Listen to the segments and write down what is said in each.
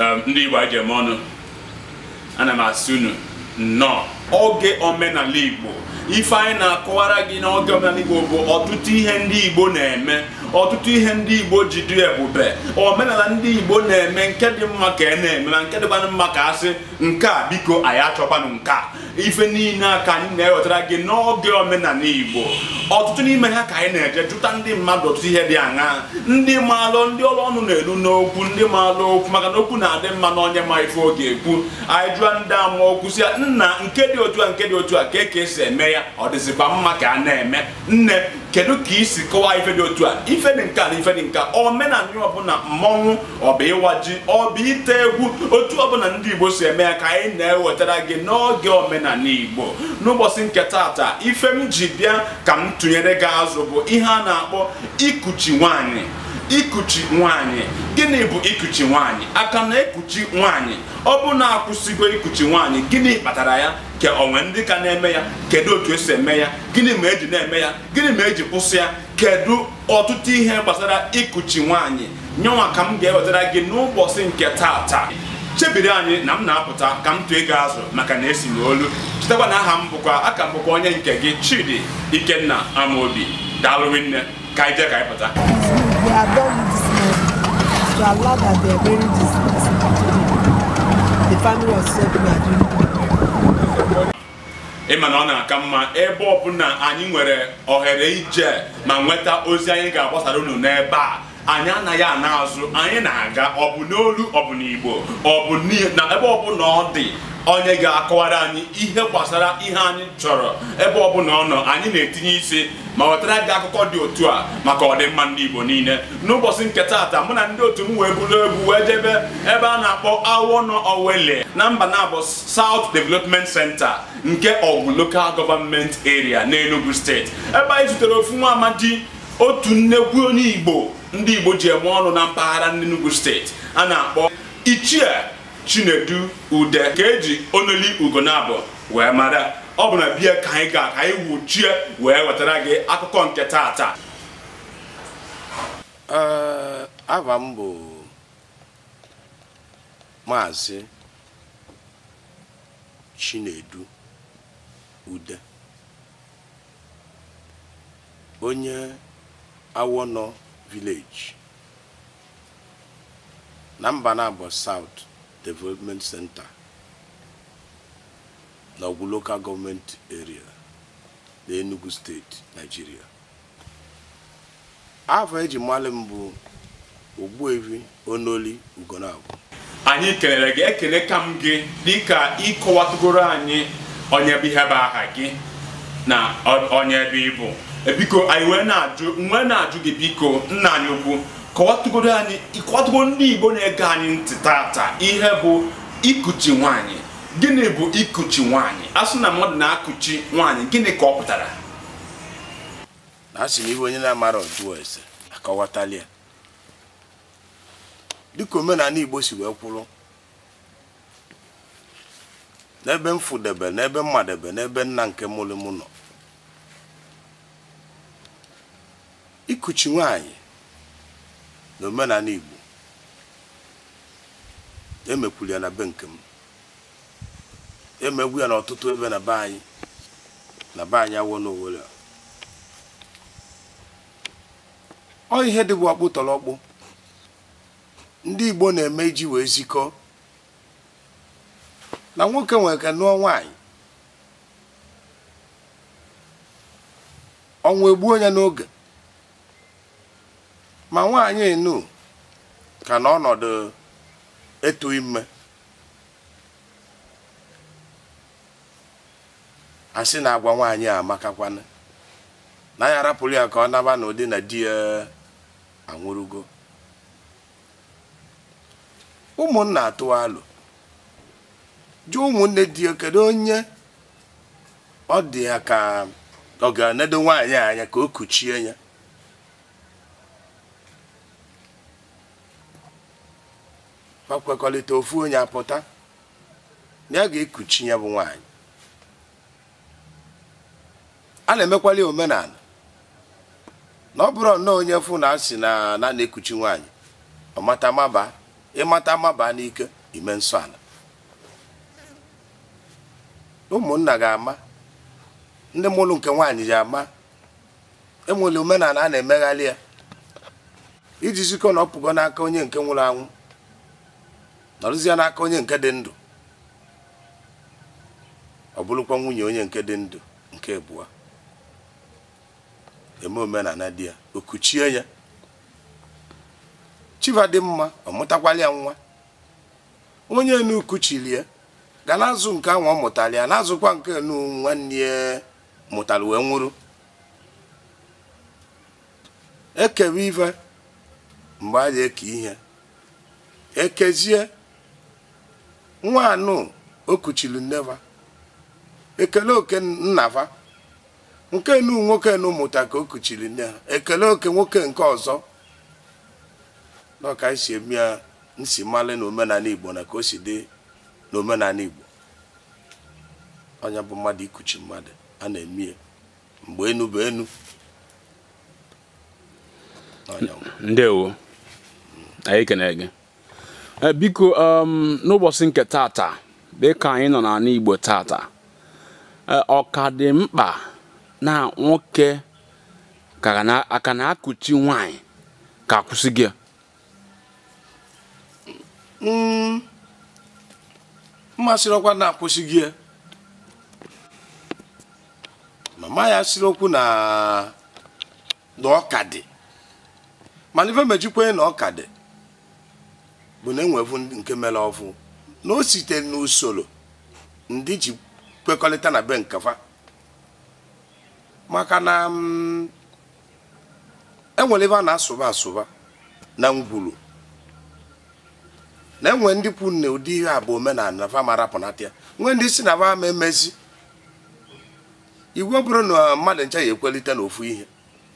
Um, ndị Igbo anyị ọnụ ana m asị unu nnọọ oge omenala Igbo ife anyị na-akọwara gị na oge omenala Igbo bụ ọtụtụ ihe ndị Igbo na-eme ọtụtụ ihe ndị Igbo ji dị ebube omenala ndị Igbo na-eme nke dị mma ka e na-eme na nke dị mma ka asị nke a biko anyị achọkwanụ nke a ife niile a ka anyị na-ewetara gị n'oge omenala Igbo ọtụtụ n'ime ha ka anyị na-eje jụta ndị mmadụ ọtụtụ ihe dị aṅa ndị maalụ ndị ọrụ ọnụ na-elu n'okwu ndị maalụ okwu maka na okwu na-adị mma na onye ma ife oge ekwu anyị jụọ ndị ama okwu si ya nna nke dị otu a nke dị otu a ka e ka esi eme ya ọ dịzikwa mma ka a na-eme nne kedu ka i si kọwaa ife dị otu a ife dị nka na ife dị nka omenala ọbụla mmọnwụ ọba ịwa ji ọba ite egwu otu ọbụla ndị igbo si eme ya ka anyị na-ewetara gị n'oge omenala igbo n'ụbọchị nke taata ife m ji bịa ka m tụnyere gị azụ bụ ihe a na-akpọ ikuchi nwanyị ikuchi nwanyị gịnị bụ ikuchi nwanyị aka na-ekuchi nwaanyị ọ bụ na-akwụsịgo ikuchi nwanyị gịnị kpatara ya ka onwe ndị ka na-eme ya kedu otu esi eme ya gịnị ma eji na-eme ya gịnị ma eji kwụsị ya kedu ọtụtụ ihe gbasara ikuchi nwaanyị nyenwa ka m ga-ewetara gị n'ụbọchị nke taata chebiri anyị na m na-apụta ka m tụọ ego azụ maka na esi m olu chetakwa na aha m bụkwa aka m bụkwa onye nke gị Chidi Ikenna Amobi daalụ nne ka anyị jee ka anyị pụta na allowed that they are burying this person The family of such people are doing ị na ọ na-aka mma ebe ọbụla anyị nwere ohere ije ma nweta ozi anyị ga-agbasara unu n'ebe a anyị anaghị ana azụ anyị na-aga ọ bụ n'olu ọ bụ n'igbo ọ bụ na ebe ọbụla ọ dị onye ga-akọwara anyị ihe gbasara ihe anyị chọrọ ebe ọ bụla ọ nọ anyị na-etinye isi ma wetara gị akụkọ dị otu a maka ọdịmma ndị Igbo niile n'ụbọchị nke taata mụ na ndị otu m wee buru egwu wee jebe ebe a na-akpọ Awọnọ Owele na mba na-abụ South Development Center nke Lokal Local Government Area n'Enugu steeti ebe anyị zutere ofu nwa otu nnekwu onye Igbo ndị Igbo ji eme ọnụ na mpaghara n'Enugu steeti a na-akpọ Ichie chinedu ude ka eji onoli ugo na-abụ wee mara ọ bụ na bie ka anyị ga ka anyị wuchie wee wetara gị akụkọ nke tata ava m bụ maazị chinedu ude onye awọnọ vileji na mba na-abụ saut Development Center na Local Government Area na Enugu Steeti Nigeria afọ eji mmalị mbụ bụ Ogbuefi Onoli Ugonagwu anyị kelere gị ekele ka m gị ka ịkọwatụgoro anyị onye bụ ihe bụ aha gị na onye bụ ịbụ biko anyị wee na-ajụ gị biko nna anyị ukwu kọwatụgodo anyị ịkwatụgo ndị igbo na-ege anyị ntị taata ihe bụ ikuchi nwanyị gịnị bụ ikuchi nwanyị asụ na mmadụ na-akụchi nwanyị gịnị ka ọ pụtara na-asị na onye na-amara ọjụọ ese akọwatali ya dịka omenala igbo si wee kwụrụ n'ebe m fụdebe n'ebe mmadebe n'ebe nna nke mụrụ mụ nọ ikuchi nwanyị. na omenala Igbo emekwuru ya na be nke m emegbu ya n'ọtụtụ ebe na be anyị na be anyị awọ n'owere ọ ihe dị bụ tọrọ ndị Igbo na-eme iji wee zikọ na nwoke nwere ka nụọ nwanyị ọnwa egbuo ya n'oge ma nwaanyị nu ka na ọnọdụ etu ime asị na agwa nwaanyị a amakakwana na ya arapụrụ ya ka ọ naba na ụdị na di ya anwụrụgo ụmụnna atụwa alụ dị ụmụnne di ya kedu onye ọ dị ya ka ọ ga-enedo nwaanyị anya ka o kuchie ya ma kwekọrịta ofu onye apụta na ya ga-ekuchi ya bụ nwanyị a na-emekwali omenala na ọ bụrụ nnọọ onye fụ na asị na na na-ekuchi nwaanyị ọmata maba ịmata maba n'ike ime nsọ ala ụmụnna ga-ama ndị mụlụ nke nwaanyị ji ama enwere omenala a na-emegharị ya iji zikọ na ọpụgo n'aka onye nke nwụrụ anwụ nọrụzie n'aka onye nke dị ndụ ọ bụrụkwa nwunye onye nke dị ndụ nke abụọ eme omenala di ya ya chiva dị mma ọ ya nwa onye nu kuchiri ga na-azụ nke anwụ ọ mụtara ya na-azụkwa nke nu nwanne ya mụtara wee nwụrụ ekewe ife mgbe a na-eke ihe ekezie nwa anụ o kuchiri nneva ekele oke nnava nke nu nwoke nu ka o kuchiri nne ha ekele oke nwoke nke ọzọ n'ọka esi eme ya nsi mmalị na omenala igbo na ka o si dị n'omenala igbo ọnya bụ mmadụ ikuchi mmadụ a na-eme ya mgbe enu bụ enu ndewo anyị kenere gị Eh, biko um, n'ụbọchị nke tata dịka anyị nọ n'ala Igbo tata eh, ọ dị mkpa na nwoke aka na-akụchi nwanyị ka akwụsị gị mm. mmasịrị ọkwa na-akwụsị gị mama ya sịrị okwu na ọka dị mana ife mejikwa na ọka dị bụ na enwevu nke mere ọfụ na o site n'usoro ndị ji kwekọrịta na be nkefa maka na mm, enwere ebe a na-asụba asụba na ngwuru na enwe ndị kwu na ụdị ihe a bụ omenala vamarapụnata ya nwee ndị si na vama emezi iwu bụrụ na mmadụ ncha ya na n'ofu ihe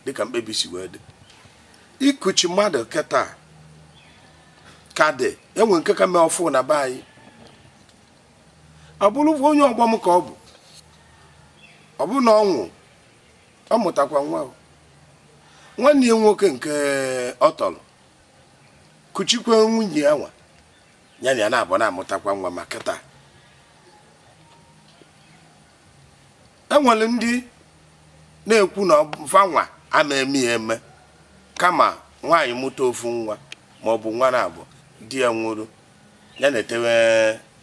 dịka mkpebi si wee dị ikuchi mmadụ keta ka dị enwe nke ka mee ọfụ na be anyị ọ onye ọgbọ m ka ọ bụ ọ bụ na ọnwụ ọ mụtakwa nwa nwanne ya nwoke nke ọ tọrọ kuchikwe nwunye ya nwa ya na ya na-abụ na-amụtakwa nwa maka taa enwere ndị na-ekwu na fanwa ama eme eme kama nwaanyị mụta ofu nwa ma nwa na abụọ di ya nwụrụ ya na-etewe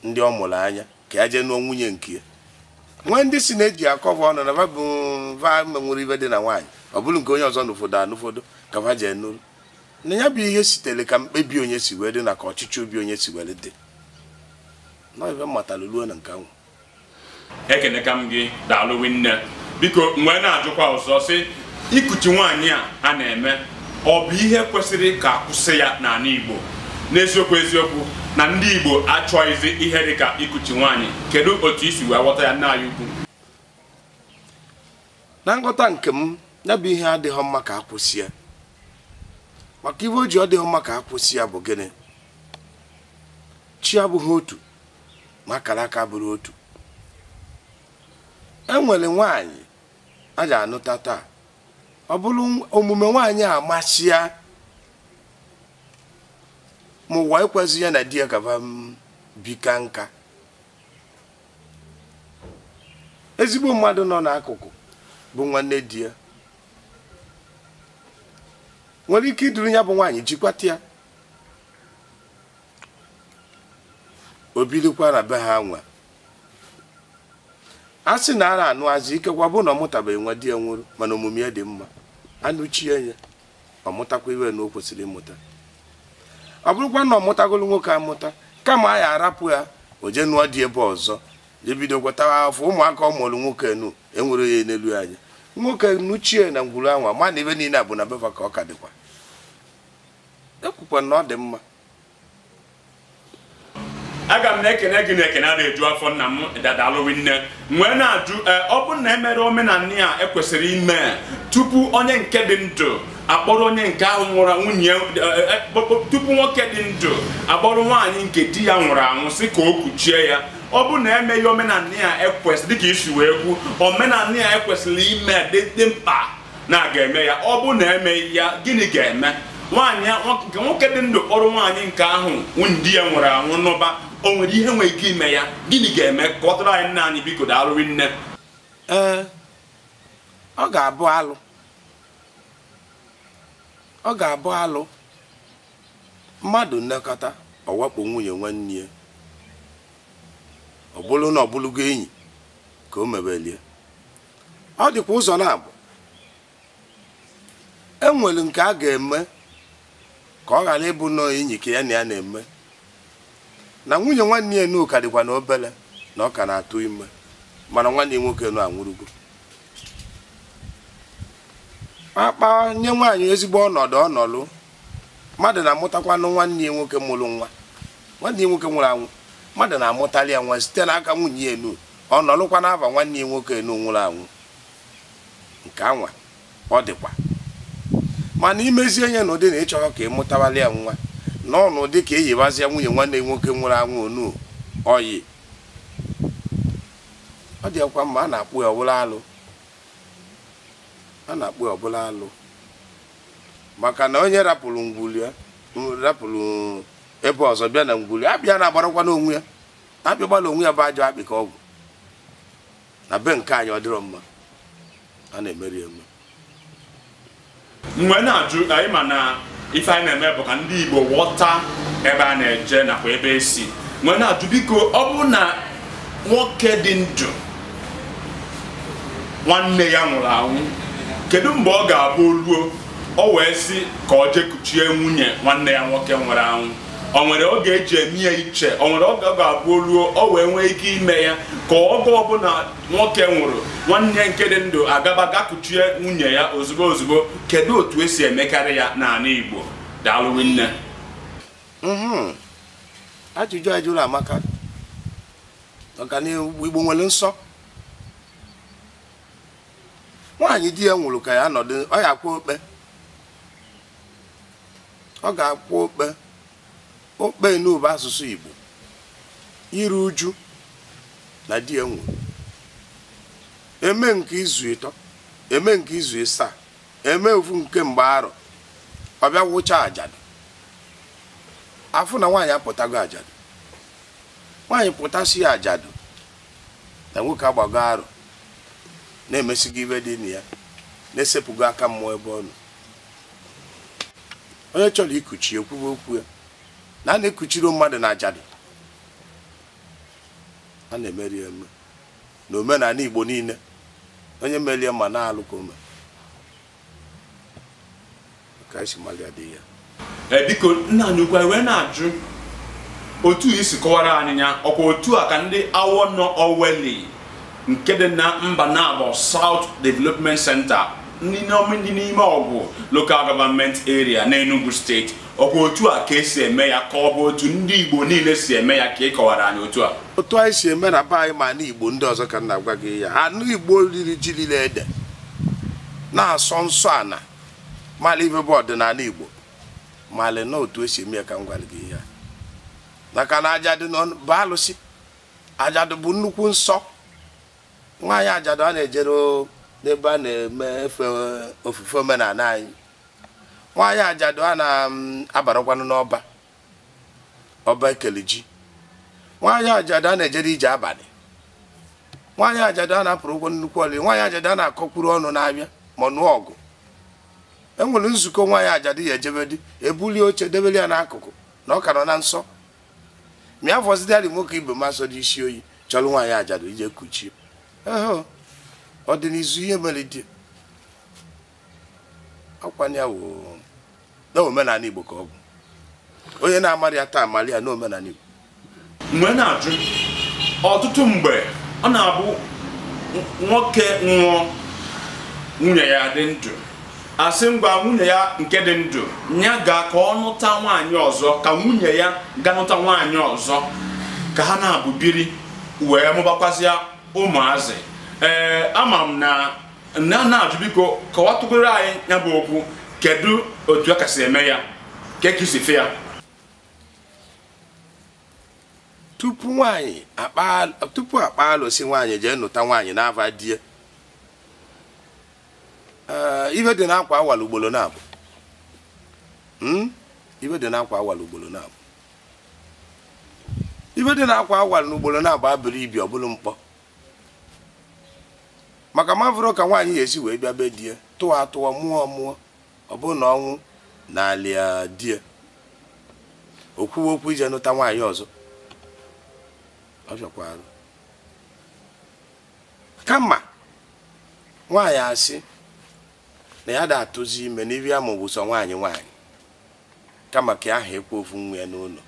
ndị ọ mụrụ anya ka ya jee nụọ nwunye nke ya nwee ndị si na-eji akọva ọnụ na babụ va menwere ibe dị na nwaanyị ọ bụrụ nke onye ọzọ n'ụfọdụ anụfọdụ ka va jee nụrụ na ya bụ ihe sitere ka mkpebi onye si wee dị na ka ọchịchị obi onye si were dị nọibe mmatara ruo na nke ahụ ekeneka m gị daalụwi nne biko mgbe na-ajụkwa ọzọ sị ikuchi nwaanyị a a na-eme ọ bụ ihe kwesịrị ka kwụsị ya n'ala Igbo n'eziokwu eziokwu na ndị Igbo achọghịzi ihe dịka ikuchi nwaanyị kedu otu isi wee ghọta ya n'anya ukwu na nghọta nke m ya bụ ihe adịghị mma ka akwụsị ya maka ihe o ji ọ dịghị mma ka akwụsị ya bụ gịnị chi abụghị otu ma akara aka bụrụ otu e nwere nwaanyị a ga-anụta taa ọ bụrụ omume nwaanyị amasị ya ma ụwa ịkwazi ya na di ya gaba m bika nka ezigbo mmadụ nọ n'akụkụ bụ nwanne di ya nwere ike iduru ya bụ nwaanyị jikwata ya obirikwa na be ha nwa a sị na ara anụazị ikekwa bụ na ọ mụtabeghị nwa di ya nwụrụ mana omume ya dị mma anụchie ya ọ mụtakwa iwe na o kwesịrị ịmụta ọ bụrụkwa na ọ mụtagolu nwoke amụta kama a ya arapụ ya o je nụọ dị ebe ọzọ jebido gwatawa afọ ụmụaka ọ mụrụ nwoke nu enwere ya n'elu anya nwoke nuchie na ngwuru anwa ma na ebe niile a bụ na beva ka ọ ka dịkwa ekwukwa na ọ dị mma aga m na-ekene gị na ekene a na-eju afọ nna m dadalụwi nwee na-ajụ eh, ọ bụrụ na emere omenala a ekwesịrị ime tupu onye nke dị ndụ akpọrọ onye nke ahụ nwụrụ anwụ nye eh, eh, tupu nwoke dị ndụ akpọrọ nwaanyị nke di ya nwụrụ anwụ si ka o kpuchie ya ọ bụ na emeghị omenala ya ekwesị dịka isi wee kwu omenala ya ekwesịrị ime dị mkpa na ga-eme ya ọ bụ na emeghị ya gịnị ga-eme nwaanyị nwoke dị ndụ kpọrọ nwaanyị nke ahụ nwunye di ya nwụrụ anwụ n'ụba o nwere ihe nwere ike ime ya gịnị ga-eme ka ọ tụrụ anyị nna anyị biko daalụrị nne ee eh, ọ ga-abụ alụ ọ ga-abụ alụ mmadụ nnekọta ọwakpo nwunye nwanne ya ọ na ọ enyi ka o mebelie ọ dịkwa ụzọ na-abụ enwere nke a ga-eme ka ọ ghara ịbụ nọọ enyi ka ya na ya na-eme na nwunye nwanne ya n'ụka dịkwa na obere na ọ ka na-atụ ime mana nwanne nwoke na anwụrụgo akpa nye nwaanyị ezigbo ọnọdụ ọnọlụ mmadụ na-amụtakwanụ nwanne ya nwoke mụrụ nwa nwanne ya nwoke nwụrụ anwụ mmadụ na-amụtali ya nwa site n'aka nwunye ya enu ọnọlụkwa n'afa nwanne ya nwoke enu nwụrụ anwụ nke anwa ọ dịkwa mana imezie ihe n'ụdị na ịchọghọ ka ịmụtawali ya nwa na ọnụdị ka eyibazie nwunye nwanne ya nwoke nwụrụ anwụ onu oyi ọ dịkwa mma a na-akpụ ya ọwụrụ alụ a na-akpụ ọbụla alụ maka na onye rapụrụ ngwuli ya rapụrụ ebe ọzọ bịa na ngwuli abịa na-agbarakwa n'onwe ya abịagbala onwe ya bụ ajọ akpị ka ọgwụ na be nke anyị ọ dịrọ mma a na-emeri eme mgbe na-ajụ anyị ma na ife anyị na-eme bụ ka ndị Igbo ghọta ebe a na-eje nakwa ebe esi mgbe na-ajụ biko ọ bụ na nwoke dị ndụ nwanne ya nwụrụ anwụ kedu mgbe ọ ga-abụ ruo ọ wee si ka ọ kuchie nwunye nwanne ya nwoke nwere anwụ o nwere oge eji eme ya iche o nwere oge ọ ga-abụ ruo ọ wee nwee ike ime ya ka oge ọbụla nwoke nwụrụ nwanne nke dị ndụ agaba ga kuchie nwunye ya ozugbo ozugbo kedu otu esi emekarị ya n'ala Igbo daalụ nne mhm. ajụjụ ajụrụ amaka ọganihu Igbo nwere nsọ nwaanyị di ya nwụrụ ka ya nọdụ ọ ya akwụ okpe ọ ga-akwụ okpe okpe n'ụba asụsụ Igbo iru uju na di ya nwụrụ eme nke izu ịtọ eme nke izu ịsaa eme ofu nke mgbe arọ ọbịa bịa wụcha ajadụ afụ na nwaanyị apụtago ajadụ nwaanyị pụtasị ajadụ na nwoke agbago arọ na-emesi gị ibe dị na ya na-esepụgo aka mmụọ ebe ọ nọ onye chọrọ ikuchi ekwuwe okwu ya na a na-ekuchiri mmadụ na ajadụ a na-emeri eme na omenala igbo niile onye merie ma na-alụ ka ome ka si mali adịghị ya e, biko nna anyị ukwu wee na-ajụ otu isi kọwara anyị ya ọkwa otu a ka ndị awọ nọ oweli nke dị na mba na South Development Center ndị n'ime ọgwụ Local Government Area na Enugu steeti bụ otu a ka esi eme ya ka ọ bụ otu ndị Igbo niile si eme ya ka ị kọwara anyị otu a otu anyị si eme na be anyị ma na Igbo ndị ọzọ ka m na-agwa gị ya anụ Igbo riri ji lile ede na-asọ nsọ ana mara ibe bụ ọdịnala Igbo mara na otu esi eme ya ka m gwara gị ya maka na ajadụ bụ alụsị ajadụ bụ nnukwu nsọ nwaanyị ajadu a na-ejere n'ebe a na-eme efe ofufe omenala anyị nwaanyị ajadu a na-abarakwanụ mm, n'ọba ọba ekeliji nwaanyị ajadu a na-ejere ije abalị nwaanyị ajadu a na-apụrụ ụgwọ nnukwu ọlị nwaanyị ajadu a na-akọkwuru ọnụ n'abịa ma nụọ ọgụ enwere nzukọ nwaanyị ajadu ya ejebedi ebulie oche debeli ya n'akụkụ na ọ ka nọ na nsọ mịa fọzidari nwoke ibe masọ dị isi oyi chọrọ nwaanyị ajadu ije kuchie ọ dị n'izu ihe mere di akwanye na omenala igbo ka ọ bụ onye na amarị ya taa amara ya na omenala igbo mgbe na-ajụ ọtụtụ mgbe ọ na-abụ nwoke nwụọ nwunye ya dị ndụ asị ngwa nwunye ya nke dị ndụ ya ga ka ọ nụta nwaanyị ọzọ ka nwunye ya ga nụta nwaanyị ọzọ ka ha na-abụ biri wee mụbakwazie ụmụazị ee eh, ama m na na na-ajụ biko tụgoro anyị ya bụ okwu kedu otu a kasị eme ya ka ya tupu nwanyị tupu akpa alụsị nwaanyị jee nụta nwaanyị na-ava die eh, ife dị n'akwa awala ugboro na-abụ hmm? dị n'akwa awala ugboro na abụrụ ibi ọ bụrụ mkpọ maka ma ka nwaanyị ga-esi wee bịa be die tụọ atụọ mụọ mụọ ọ bụrụ na ọnwụ na alịadie die kwuwe okwu ije nụta nwaanyị ọzọ ọ bịakwara kama nwaanyị asị na ya da-atụzi ime na ya ama sọ nwaanyị nwaanyị kama ka aha ekwu ofu nwa ya n'ụlọ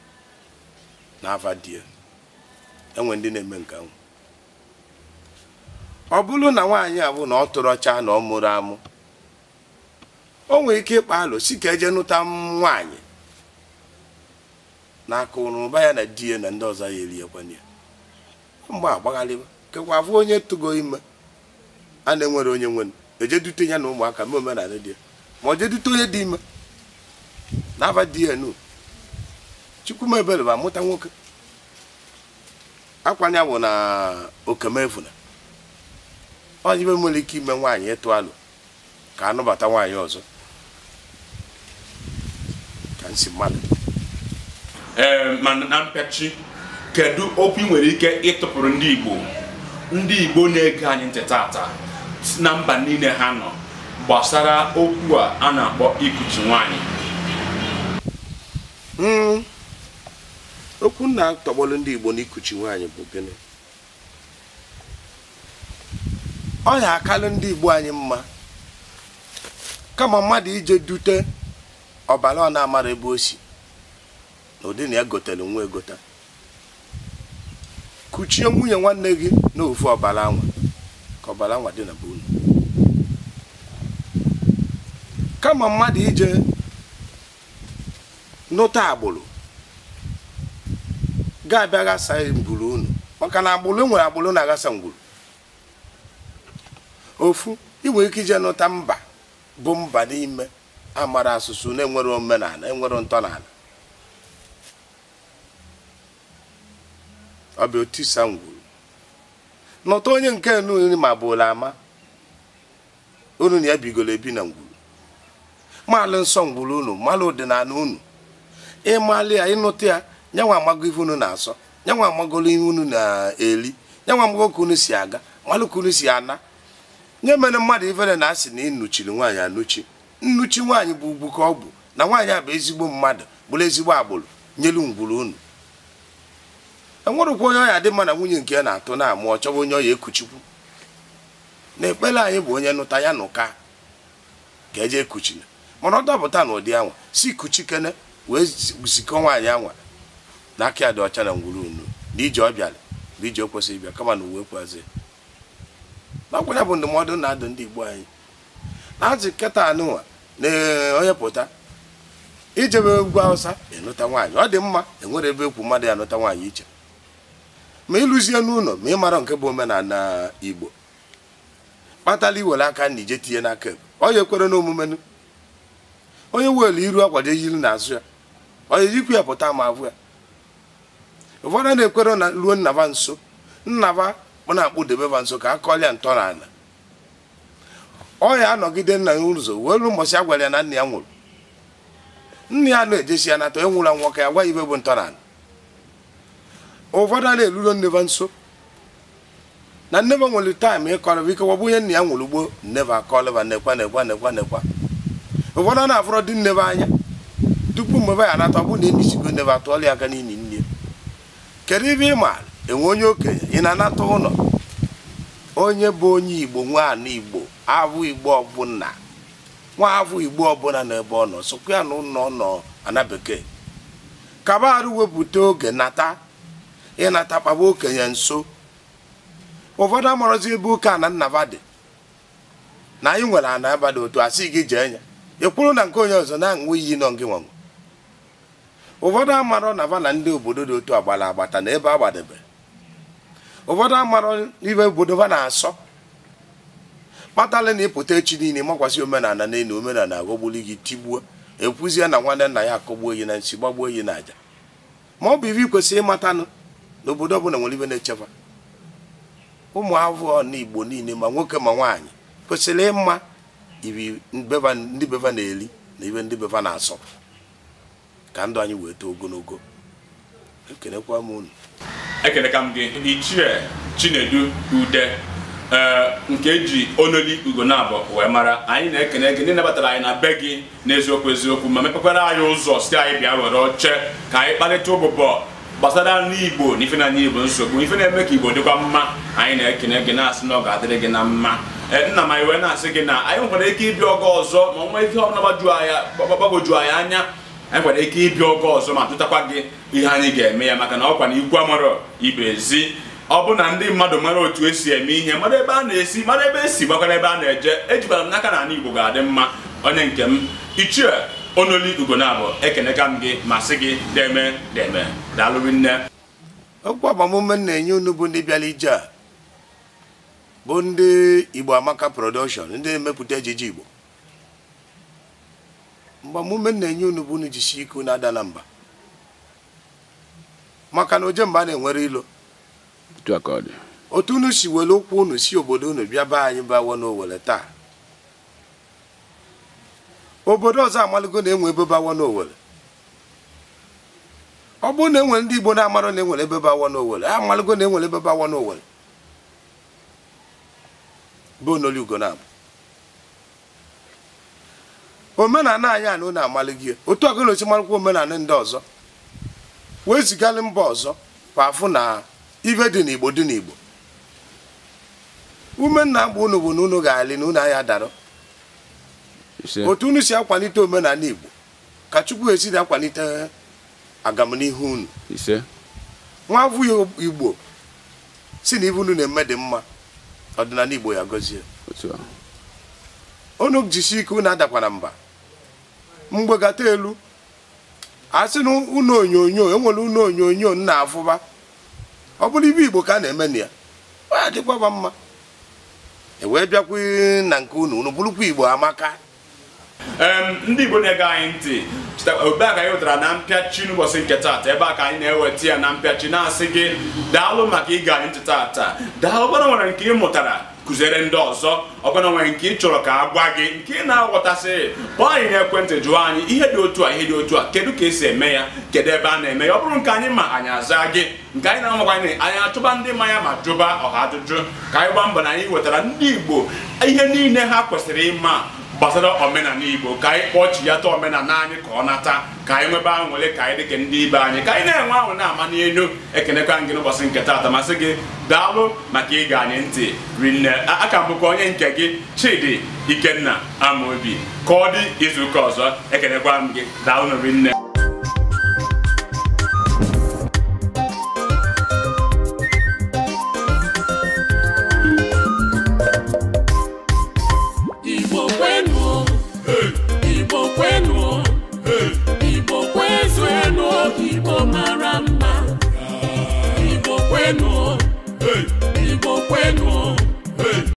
na afa die enwe ndị na-eme nke ahụ ọ bụrụ na nwaanyị a bụ na ọ tụrụ ọcha na ọ mụrụ amụ o nwere ike ịkpa alụ si ka eje nụta nwaanyị na akụrụba ya na di ya na ndị ọzọ ya eriekwana ya mgbe agbagharịwa kekwa bụ onye tụgo ime a na-enwere onye nwere ejedute ya na ụmụaka ma omenala di ya ma ọ jedute onye dị ime na-aba di ya nu chukwumebere bụ amụta nwoke akwanye bụ na okemefuna onye ibe nwere ike ime nwaanyị ịtụ alụ ka a anụbata nwaanyị ọzọ ka nsi mmadụ ma na mpechi kedu okwu ị nwere ike ịtụpụrụ ndị Igbo ndị Igbo na-ege anyị ntị tata na mba niile ha nọ gbasara okwu a a na-akpọ ikuchi nwaanyị hmm. okwu na-atọgbọlụ ndị Igbo na ikuchi nwaanyị bụ gịnị ọ na-akalụ ndị Igbo anyị mma kama mmadụ ije dute ọbara ọ na-amara ebe o si na ụdị na egotelu nwa egota kuchie nwunye nwanne gị n'ofu ọbara anwa ka ọbara anwa dị na be unu kama mmadụ ije nụta agbụrụ ga-abịa ghasa unu maka na agbụrụ e nwere agbụrụ na-aghasa ngwuru ofu inwere ike ije nụta mba bụ mba n'ime amara asụsụ na-enwere omenala enwere ntọala ọ bụ otu onye nke nri ma bụla ama unu na ya bigoro ebi na ngwuru maalụ nsọ ngwuru unu maalụ ọdịnala unu ịmalụ ya ịnụta ya nyanwa amago ihe unu na-asọ nyanwa amagolo ihe unu na-eri nyanwa amago ka unu si aga malụ ka unu si ana nye mere mmadụ ivere na asị na ị nnuchiri nwaanyị anụchi nnuchi nwaanyị bụ ugwu ka ọ bụ na nwaanyị a bụ ezigbo mmadụ bụrụ ezigbo agbụrụ nyelu ngwuru unu enwerekwa onye ọya dị mana na nwunye nke ya na-atụ na-amụ ọ onye ọya ekuchikwu na ekpere anyị bụ onye nụta ya na ụka ka eje ekuchina mana ọ dọpụta n'ụdị anwa si kuchikene wee zikọ nwaanyị anwa na aka ya dị ọcha na ngwuru unu na ije ọ bịara na ije o kwesịrị ịbịa kama na uwe kwazie nakwụkwọ bụ ndụmọdụ na-adụ ndị igbo anyị na-azụ nkịta anụnwa na eh, onye pụta ijebe egwu awụsa enụta nwaanyị ọ dị mma enwere ebe ekwu mmadụ ya nụta nwaanyị iche ma ịlụzie n'ụlọ ma ị mara nke bụ omenala igbo kpatala iwere aka na ije tinye n'aka ebe onye kwere n'omume onye welu iru akwado ejiri n'azụ ya onye jikwu ya pụta ma bụ ya ụfọdụ na-ekwere na ruo nnaba nso nnaba mụ na-akpụ debeba nso ka a kọlịa ntọala ọ ya anọgide nna ya ụzọ wee ru ụbọchị a ya na nna ya nwụrụ nna ya na-ejesi ya nata enwụrụ anwụ ka ya gwa ibe bụ ntọala ụfọdụ a na-erulo nneba nso na nneba nwere taịm ịkọrọba ike wọbụ ihe nna ya nwụrụ gboo nneba akọlịba nekwa nekwa nekwa nekwa ụfọdụ a na-afọrọ dị nneba anya tupu mgbe ba ya anata ọ bụ na enisigo nneba atụọla ya aka n'ili nne kedu ibe ị maara enwe onye okenye ị na-anata ụlọ onye bụ onye igbo nwaana igbo igbo ọbụla nwa abụ igbo ọbụla n'ebe ọ nọ sokwa ya na ụlọ nọ ana bekee kabarụ wepụta oge nata ịnata kpaba okenye nso ụfọdụ amarozi ebe ụka ana nnaba dị na anyị nwere ana aba dị otu asị gị jee ya ekwuru na nke onye ọzọ na nwe iyi nọ gị nwanwe ụfọdụ amarọ na ndị obodo dị otu agbara agbata na ebe agbadebe ụfọdụ amarọ ibe obodo ha na-asọ kpatala na ịpụta echi niile makwasị omenala n'elu omenala aghọgbuli gị tigbuo ekwuzie na nwanne nna ya akọgbuo yi na nsi gbagbuo na n'aja ma ọ bụ ibe ikwesịrị ịmatanụ na obodo ọbụla nwere ibe na-echekwa ụmụ avụọ na igbo niile ma nwoke ma nwaanyị kwesịrị ịma ibi ndị beva na-eri na ibe ndị beva na-asọ ka ndụ anyị wee too ogologo ekelekwa m unu ekeleka m gị ichie chinedu ude ee nke eji ololi ugonabụ wee mara anyị na-ekene gị ndị nabatara anyị na be gị n'eziokwu eziokwu ma mepekwara anyị ụzọ site anyị bịa were oche ka anyị kparịta ụbụbọ gbasara n'igbo na ife na igbo nsogbu ife na-eme ka igbo dịkwa mma anyị na-ekene gị na-asị na ọ ga-adịrị gị na mma e, nna m anyị wee na-asị gị na anyị nwere ike ịbịa ọgọ ọzọ ma ọ nwee ihe ọbụla gbagoju anyị anya anyị kwara ike ịbịa oge ọzọ ma jụtakwa gị ihe anyị ga-eme ya maka na ọkwa na ikwu amarọ ibe ezi ọ bụ na ndị mmadụ mara otu esi eme ihe mara ebe a na-esi mara ebe esi gbakwara ebe a na-eje ejikwara m n'aka na ala Igbo ga-adị mma onye nke m ichie onoli ugonabụ ekenekam m gị ma sị gị deme deme daalụ nne okwu agbamume na-enye unu bụ ndị bịara ije a bụ ndị Igbo Amaka production ndị na-emepụta ejije Igbo mgbe m na-enye unu bụ unu jishi ike unu adala mba maka na oje mgbe a na-enwere ilo otu unu si were ụkwụ unu si obodo unu bịa be anyị bawo n'owere taa obodo ọzọ amaligo na-enwe ebe n'owere ọ bụrụ na enwere ndị Igbo na-amara na enwere ebe bawo n'owere amaligo na enwere ebe bawo n'owere bụ ugo na-abụ omenala anyị anụ na-amalị gị otu ọgụla osi malụkwa omenala ndị ọzọ wee zigalị mba ọzọ kwa afụ na ibe dị n'igbo dị n'igbo ume nna agba unu bụ na unu ga-alị na unu anya dara otu unu si akwalite omenala igbo ka chukwu esiri akwalite agamnihu unu nwa abụghị igbo si na ibe unu na-eme dị mma ọdịnala igbo ya gọzie unu jisi ike unu adakwana mba mgbegata elu a sị na ụlọ onyonyo enwere ụlọ onyonyo nna afụba ọ bụrụ ibe igbo ka a na-eme na ya ọ adịkwaba mma ewee bịakwa na nke unu unu bụrụkwa igbo amaka ndị igbo na-ege anyị ntị ebe a ka anyị wetara na mpịachi n'ụbọchị nke taata ebe a ka anyị na-eweta ya na mpịachi na-asị gị daalụ maka ịga anyị ntị taata daalụ gbara nwere nke ị mụtara kụziere ndị ọzọ ọbụna nwere nke ị chọrọ ka a gwa gị nke ị na-aghọtasị kpọọ anyị n'ekwentị jụọ anyị ihe dị otu a ihe dị otu a kedu ka esi eme ya kedu ebe a na-eme ya ọ bụrụ nke anyị ma anyị aza gị nke anyị na-amakwanye anyị achụba ndị mmanya ma jụba ọha ajụjụ ka anyị gbaa mbọ na anyị wetara ndị Igbo ihe niile ha kwesịrị ịma gbasara omenala igbo ka anyị kpọchie ya ta omenala anyị ka ọ nata ka anyị nwebe aṅụrị ka anyị dịka ndị ibe anyị ka anyị na-enwe aṅụrị na-ama n'elu ekenekwa gị n'ụbọchị nke taata masị gị daalụ maka ịga anyị ntị rinne aka bụkwa onye nke gị chidi ikenna amaobi ka ọ dị izuụka ọzọ ekenekwa m gị daalụ rinne